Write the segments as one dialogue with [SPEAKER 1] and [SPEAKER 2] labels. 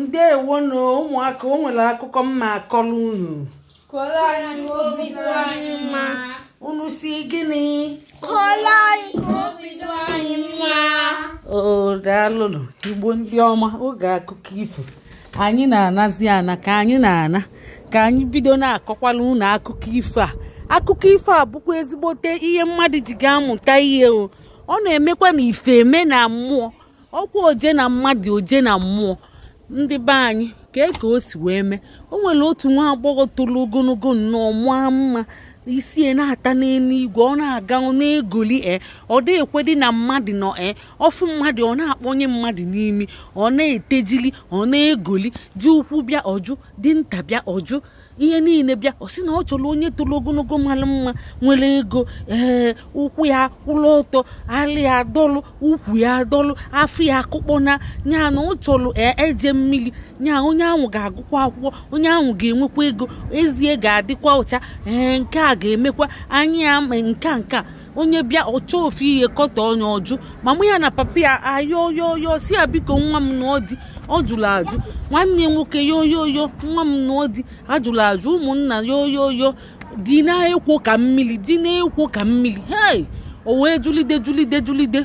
[SPEAKER 1] ndewonu ụmụaka o nwere akụkọ mma akọrọ unu unu si gịnị o igbo ndị ọma oge akụkọ ifo anyị na-anazi ana ka anyị na-ana ka anyị bido na-akọkwala unu akụkọ ifo a akụkọ ifo a bụkwa ezigbote ihe mmadụ ji ga-amụta ihe o ọ na-emekwa na ife eme na mmụọ ọkwa oje na mmadụ oje na mmụọ ndị be anyị kee ka o si wee mee o nwere otu nwa agbọghọ toro ogologo nnọọ maa mma isie na-ata n'eluigwe ọ na-aga na-egoli e ọ dị ekwedị na mmadụ nọ e eh, ọfụ mmadụ ọ na-akpọnye mmadụ n'imi ọ na-etejili ọ na-egoli ji ụkwụ bịa ọjụ dinta bịa ọjụ ihe niile bịa ọ sị na ọ chọrọ onye toro ogologo mara mma nwere ego ee eh, ụkwụ ya kwụrụ ọtọ alị ya adọlụ ụkwụ ya adọlụ afọ ya akụkpọ na nyana na ọ chọrọ eje mmiri nya onye ahụ ga-agụkwa akwụkwọ onye ahụ ga-enwekwa ego ezie ga-adịkwa ụcha ee nke a a ga-emekwa anyị ama nke nke onye bịa ọcha ofu ihe kọtọ onye ọjụ mama ya na papa ya ayoyoyo si ya biko nwa m na ọ dị ọ jụrụ ajụ nwanne nwoke yoyoyo nwa m na ọ dị ajụrụ ajụ ụmụnna yoyoyo dị na-ekwo ka mmiri dị na-ekwo ka mmiri hei o wee julide julide julide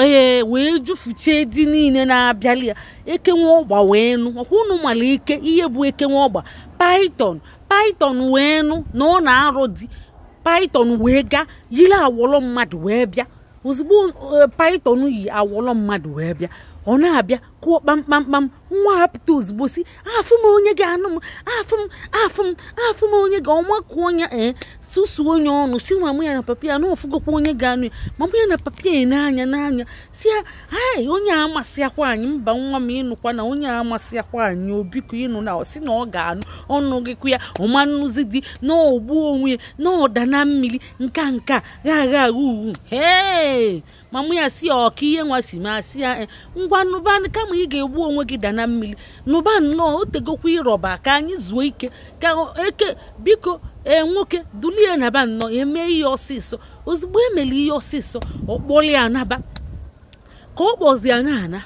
[SPEAKER 1] ee wee jufuchie dị niile na-abịali ya ekenwe ọgba wee nụ ọkwa unu mara ike ihe bụ ekenwe ọgba paiton paiton wee nụ na ọ na arụ di paiton wee gaa yiri awọlọ mmadụ wee bịa ozugbo eh, paiton yi awọlọ mmadụ wee bịa ọ na-abịa kụọ kpamkpamkpam nwa hapụta ozugbo si afụ m onye ga-anụ m afụ m afụ m afụ m onye ga ọnwa kụọ ya ee eh, susuo onye ọnụ si nwa m ya na papa ya na ọfụgokwa onye ga-anụ ya ma mụ ya na papa ya n'anya n'anya si ya ai onye amasịakwa anyị mba nwa m ịnụkwa na onye amasịakwa anyị obiko ịnụ na ọ sị na ọ ga-anụ ọnụ gịkwa ya ọma nnụzi dị na onwe ya na ọda na mmiri nka nka gha agha agha uwu hee mụ ya si ya ọka ihe nwa si ma si ya eh, ngwa nụban kama ị ga-egbu onwe gị da na mmiri nụba nnọọ o tegokwa ịrọba ka anyị zuo ike ka eke biko enwoke eh, nwoke dulie naba nnọọ emee ihe ọsịsọ ozugbo emere ihe ọsịsọ ọkpọlie anaba ka ọ kpọzi ana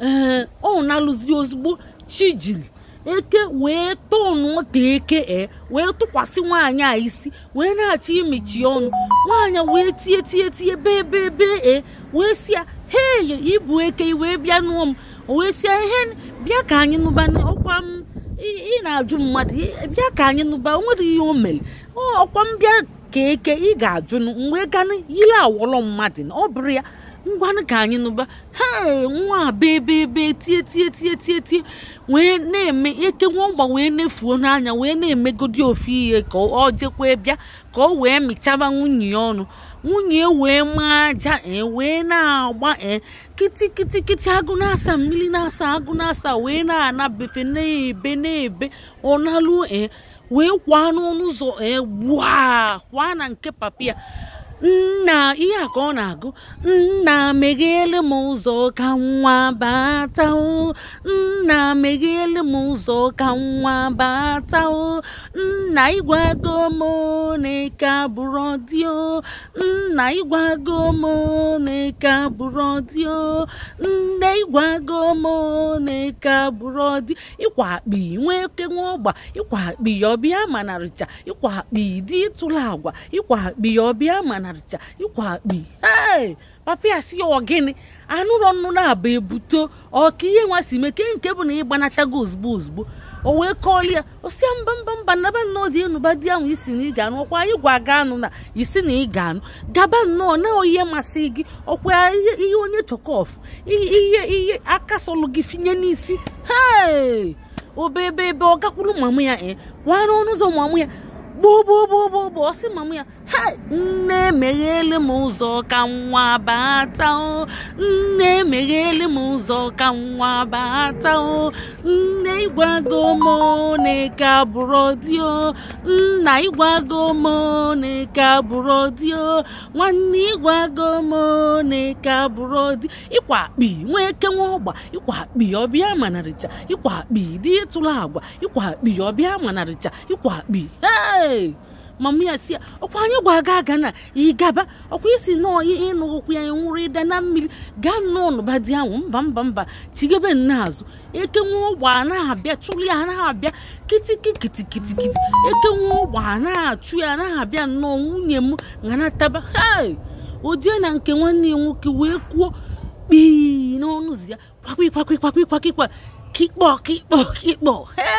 [SPEAKER 1] ee eh, ọ na ozugbo chi chijiri eke wee tonu ọta eke e wee tụkwasị nwaanyị a isi wee na-achọ imechi ọnụ nwaanyị wee tie tie tie bee bee bee e wee si ya ibu eke wee bịa nụọ m wee si ihe bịa ka anyị nụba ọkwa m ị na-ajụ mmadụ bịa ka anyị nụba o nwere ihe o mere ọkwa m ka eke ị ga-ajụ mgbe ganụ yile mmadụ ọ bụrụ ya ngwanụ ka anyị nụba ha nwa bebe ebe tie tie tie tie tie wee na-eme eke nwa ọgba wee efuo n'anya wee na-emegodi ofu ihe ka ọ jekwa bịa ka ọ wee mịchaba nwunye ya ọnụ nwunye e wee maa aja e wee na-agba kiti kiti kiti agụ na-asa mmiri na-asa agụ na-asa wee na-anabefe na-ebe na-ebe ọ naluo e, wee kwaa n'ọnụ ụzọ ee kwaa na nke papa ya nna ihe a ka ọ na-agụ nna meghele m ụzọ ka nwa bata o nna meghele m ụzọ ka nwa bata o nna ịgwago m na-eke nna ịgwago m na-eke abụrụ nne ịgwago m na-eke ịkwa akpi nwee oke nwa ọgba ịkwa akpi ọbịa manarịcha ịkwa akpi dị ịtụla agwa ịkwa akpi ọbịa mana narịcha ịkwa akpi ee papa ya si ya ọgịnị anụrọ nnụ na-aba ebuto ọka ihe nwa si mee ke nke bụ na ịgbanatago ozugbo ozugbo o wee kọọlụ ya ya mba mba mba naba nnọọ dị enuba di ahụ isi na ị ga-anụ ọkwa anyị gwa anụ na isi na ị ga-anụ gaba nnọọ na ihe masị gị ọkwa ihe onye chọkọf ihe ihe aka sọlụ gị finye n'isi hee obebe ebe ọ gakwuru mamụ ya ee eh? kwara ọnụ ụzọ mamụ ya gbogbogbogbogbo ọsị mama ya nne emeghele m ụzọ ka nwa bata o nne emeghele m ụzọ ka nwa bata o nne ịgwago m na ike dị o nna ịgwago m na ike dị o nwanne ịgwago m na ike dị ịkwa akpi nwa eke nwa ọgba ịkwa akpi ọbịa manarịcha ịkwa akpi dị ịtụla agwa ịkwa akpi ọbịa manarịcha ịkwa akpi ee ee mama oh, oh, ya si ya ọkwa anyị gwa aga aga na ịgaba ọkwa isi nọọ ịnụ ụkwụ ya nwụrụ ịda na mmiri ga nnọọ n'ụba ahụ mba mba mba chigebe nna azụ eke nwa ụgba anaghị abịa chụrụ ya anaghị abịa kitiki kitikitikiti eke nwa ụgba anaghị achụ ya anaghị abịa nnọọ nwunye m nganataba hei na nke nwanne ya nwoke wee kwuo kpii n'ọnụzi ya kwakpikpakpikpakpikpakpikpa kikpọ kikpọ kikpọ hee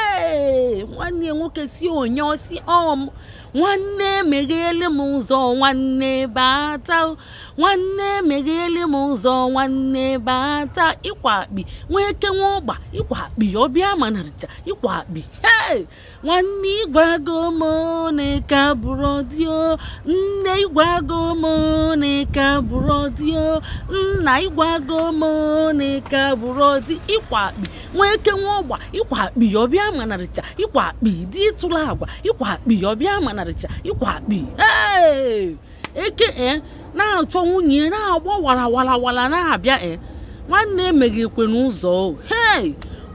[SPEAKER 1] nwanne nwoke si onye osi ọm nwanne meghele m ụzọ nwanne bata nwanne meghele m ụzọ nwanne bata ịkwa akpi nwa eke nwa ọgba ịkwa akpi ọbịa manarịcha ịkwa akpi nwanne ịgwago m na ịka nne ịgwago m na ịka nna ịgwago m na ịka bụrụ ịkwa akpi nwee eke nwa ọgba ịkwa akpi ọbịa manarịcha ịkwa akpị dị ịtụla agwa ịkwa akpi ọbịa manarịcha ịkwa akpị eke e na-achọ nwunye na-agba wara wara na-abịa e nwanne emeghị ekwe n'ụzọ hei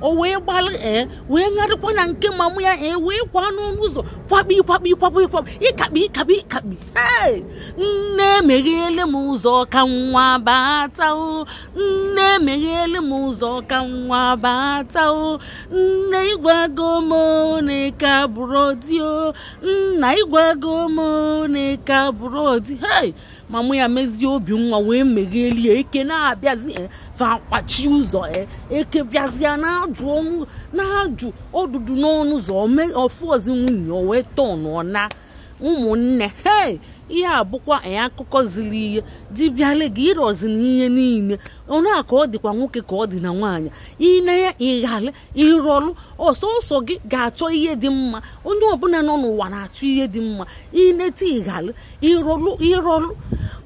[SPEAKER 1] o wee gbalị ee eh, wee ṅarịkwa na nke mamụ ya ee eh, wee kwa n'ọnụ ụzọ kwakpi kwakpi kwakpi kwakpi ịkakpi ịkakpi ịkakpi ee nne emeghele m ụzọ ka nwa bata o nne emeghele m ụzọ ka nwa bata o nne ịgwago m na ịka bụrụ di o nna ịgwago m na bụrụ di hei mamụ ya mezie obi nwa wee meghelie eke na-abịazi fakwachi ụzọ eke bịazie na jụ ọnụ na ha jụ ọdụdụ n'ọnụ ụzọ ọfụọzi nwunye o wee tọọ nọ ụmụnne hei ihe a bụkwa akụkọ ziri ihe dibịale gị ịrọzi na ihe niile onye a ka ọ dịkwa nwoke ka ọ dị na nwaanyị ịnanya ịghale ịrọlụ ọsọsọ gị ga-achọ ihe dị mma onye ọbụla nọ n'ụwa na-achọ ihe dị mma inete ịghale ịrọlụ ịrọlụ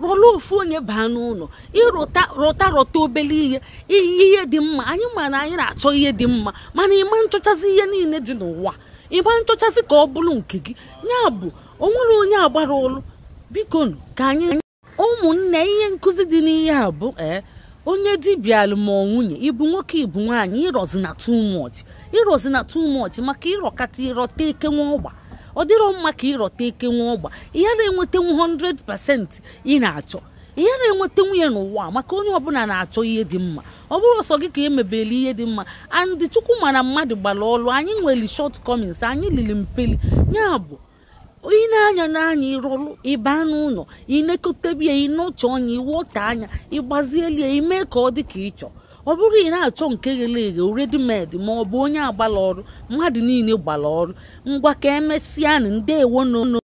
[SPEAKER 1] rọlụ ofu onye baa n'ụlọ ịrụta rọta rọta obele ihe ihe dị mma anyị ma na anyị na-achọ ihe dị mma mana ịma nchọchasị ihe niile dị n'ụwa ịma nchọchasị ka ọ bụrụ nke gị ya bụ onye agbara olu bikonu ka anyị ụmụnne ihe nkụzi dị n'ihe a bụ e, onye dibịa alụmọ nwunye ịbụ nwoke ịbụ nwaanyị ịrọzi na too much ịrọzi na maka ịrọkata ịrọta ike nwa ọgba ọ dịrọ mma ka ịrọta ike nwa ọgba ihe na 100% ị na-achọ ihe na-enweta nwunye n'ụwa maka onye ọbụla na-achọ ihe dị mma ọ bụrụ ọsọ gị ka emebeli ihe dị mma andị chukwu mana mmadụ gbara ọlụ anyị nwere short comings anyị lili mpeli ya bụ ị na-anya n'anya ịrụrụ ịba n'ụlọ ịnekọtabia ịnọcha ọnya ịwọta anya ịgbazielie ime ka ọ dị ka ịchọ ọ bụrụ ị na-achọ nke ghere eghe redimedi ma ọ bụ onye agbala ọrụ mmadụ niile gbara ọrụ ngwa ka emesịa nụ ndeewo n'ụlọ.